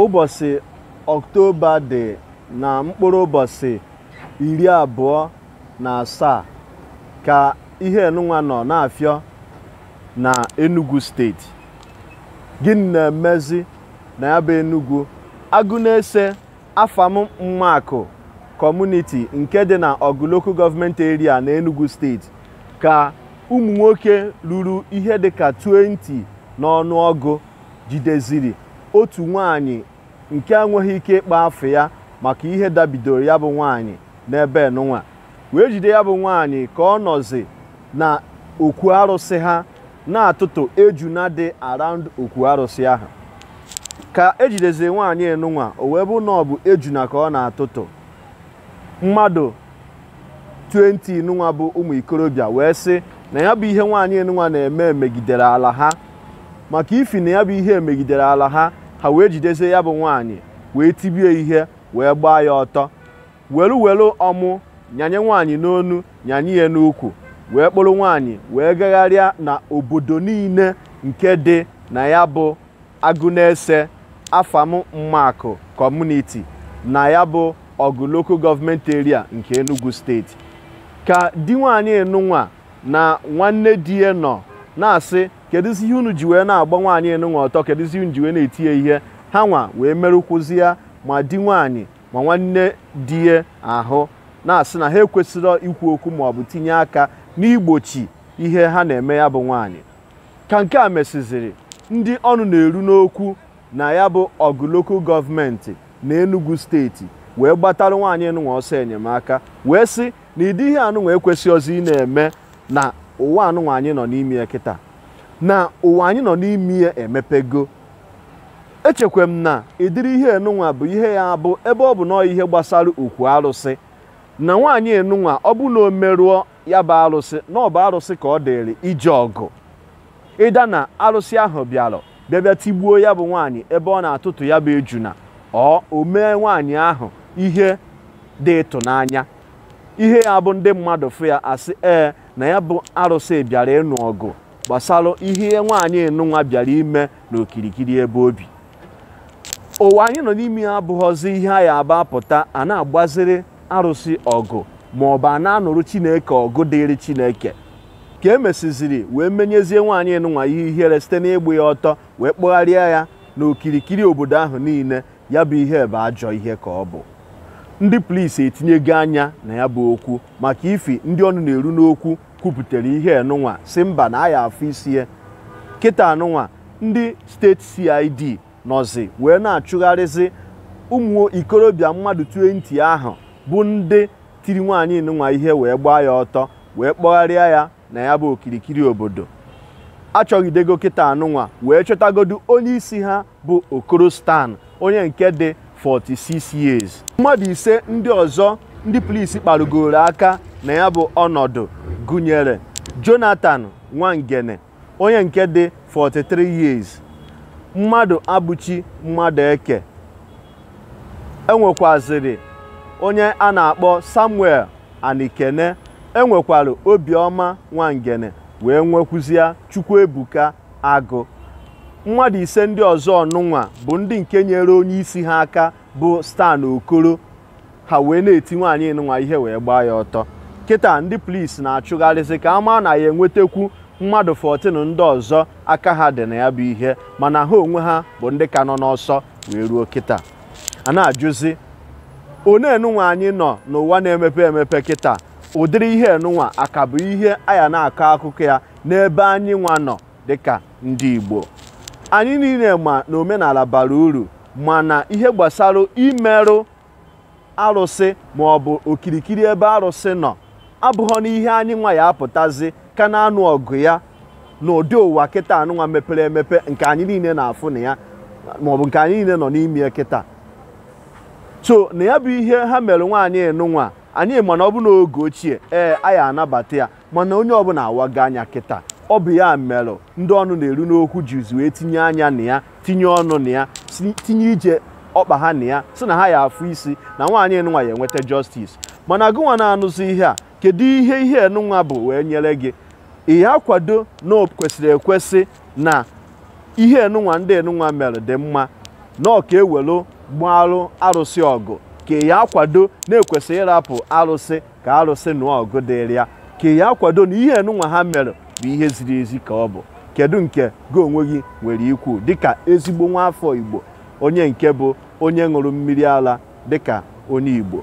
ụbọchị ọktoba dị na mkpụrụ ụbọchị iri abụọ na asaa ka ihe enunwa nọ na-afịọ na Enugu steeti gịnị na-emezi na ya bụ Enugu agụ na-ese afam mmakụ kọmuniti nke dị na Ọgụ Local Government Area na Enugu steeti ka ụmụ nwoke ruru ihe dị ka 20 n'ọnụọgụ jideziri otu nwanyị nke a nweghị ike ịkpa afọ ya maka ihe dabidoro ya bụ nwaanyị n'ebe n'ụwa wee jide ya bụ nwaanyị ka ọ nọzi na okwu arụsị ha na-atụtụ eju na dị araụnd okwu arụsị ahụ ka ejidezie nwaanyị enụnwa o wee bụ na ọ bụ ejuna ka ọ na-atụtụ mmadụ 20 nụnwa bụ ụmụ ikorobịa wee sị na ya bụ ihe nwaanyị enụnwa na-eme megidere ala ha maka ifi na ya bụ ihe megidere ala ha ha wee jidezie ya bụ nwaanyị wee tibie ihe wee gbaa ya ọtọ welu welu ọmụ nyanye nwaanyị n'onu nyanye ya n'ukwu wee kpụrụ nwaanyị wee gagharịa na obodo niile nke dị na ya bụ agụnese afam mmakụ kọmuniti na ya bụ ọgụ local government area nke enugu steeti ka di nwaanyị nụnwa na nwanne di ya nọ na-asị kedụzi ihe unu ji wee na-agba nwaanyị enunwa ọtọ kedụzi unu ji wee na etinye ihe ha nwa wee ya ma di nwaanyị ma nwanne di ahụ na-asị na ha ekwesịrị ikwu okwu bụ tinye aka n'igbochi ihe ha na-eme ya bụ nwaanyị ka nke a mesịziri ndị ọnụ na-eru n'okwu na ya bụ ọgụ lokal gọọmenti na Enugu steeti wee gbatara nwaanyị enunwa ọsọ enyemaka wee sị na ịdị ihe anụnwa ọzọ ị na-eme na ụwa anụnwa anyị nọ n'ime ya kịta na ụwa anyị nọ n'ime ya emepego echekwa m na ịdịrị ihe enunwa bụ ihe ya abụ ebe ọ bụ nọọ ihe gbasara okwu arụsị na nwaanyị enunwa ọ bụ na o merụọ ya bụ arụsị na ọ bụ arụsị ka ọ dịrị ije ọgụ ịda na arụsị ahụ bịara bịabịa tigbuo ya bụ nwaanyị ebe ọ na-atụtụ ya bụ ejuna ọ o mee nwaanyị ahụ ihe dị ịtụnanya ihe ya bụ ndị mmadụ fụ ya asị ee na ya bụ arụsị bịara ịnụ ọgụ gbasara ihe nwaanyị enunwa bịara ime n'okirikiri ebe obi ụwa anyị nọ n'ime ya abụghọzi ihe a ya aba apụta a na-agbaziri arụsị ọgụ ma ọ bụ a na-anụrụ chineke ọgụ dịrị chineke ka e emesiziri wee menyezie nwaanyị enunwa ihe ihere site n'ịgba ya ọtọ wee kpọgharịa ya n'okirikiri obodo ahụ niile ya bụ ihe bụ ajọ ihe ka ọ bụ ndị polisi etinyego anya na ya bụ okwu maka ifi ndị ọnụ na-eru n'okwu kwupụtara ihe enụnwa si mba na aya afọ isie kịta anụnwa ndị steeti cid nọzi wee na-achụgharịzi ụmụ ikorobịa mmadụ 20 ahụ bụ ndị tiri nwaanyị nụnwa ihe wee gbaa ya ọtọ wee kpọgharịa ya na ya bụ okirikiri obodo achọgidego kịta anụnwa wee chọtagodu onye isi ha bụ okoro stan onye nke dị 46 years mmadụ ise ndị ọzọ ndị polisi kparụgoro aka na ya bụ ọnọdụ gụnyere Jonathan Nwangene onye nke dị 43 years mmadụ abụchi mmadụ eke enwekwaziri onye a na-akpọ Samuel Anikene enwekwara Obiọma Nwangene wee chukwu Chukwuebuka Agụ mmadụ ise ndị ọzọ ọnụnwa bụ ndị nke nyere onye isi ha aka bụ Stan Okoro ha wee na-eti nwaanyị nụnwa ihe wee gbaa ya ọtọ kịta ndị polisi na-achụgharịsị ka ama na ya enwetakwu mmadụ 14 ndị ọzọ aka ha dị na ya bụ ihe mana ha onwe ha bụ ndị ka nọ n'ọsọ wee ruo kịta a na-ajụzi one enunwa anyị nọ n'ụwa na-emepe emepe kịta ụdịrị ihe enunwa aka bụ ihe aya na-akọ akụkọ ya n'ebe anyị nwa nọ dịka ndị Igbo anyị niile ma na omenala bara uru mana ihe gbasara imerụ arụsị maọbụ okirikiri ebe arụsị nọ abụghọ n'ihe anyị nwa ya apụtazi ka na-anụ ọgụ ya ụdị ụwa kịta anụnwa mepere emepe nke anyị niile na-afụ na ya maọbụ nke anyị niile nọ n'ime kịta so na ya bụ ihe ha mere nwaanyị nụnwa anyị mana ọ bụ n'oge ochie ee anyị anabata ya mana onye ọbụla awago anya kịta ọ bụ ya merụ ndị ọnụ na-eru n'okwu jizi wee tinye anya na ya tinye ọnụ na ya tinye ije ọkpa ha na ya si na ha ya afụ isi na nwaanyị nụnwa ya enweta justice mana gụnwa na-anụzi ihe a kedu ihe ihe enunwa bụ wee nyere gị ị ya kwado na o kwesịrị ekwesị na ihe enunwa ndị enunwa mere dị mma na ọka ka ewelu gbarụ arụsị ọgụ ka ị ya na-ekwesị ịrapụ arụsị ka arụsị nụọ ọgụ dịrị ya ka ị ya na ihe enunwa ha mere bụ ihe ziri ezi ka ọ bụ kedu nke gị onwe gị nwere ikwu dịka ezigbo nwa afọ Igbo onye nke bụ onye ṅụrụ mmiri ara dịka onye Igbo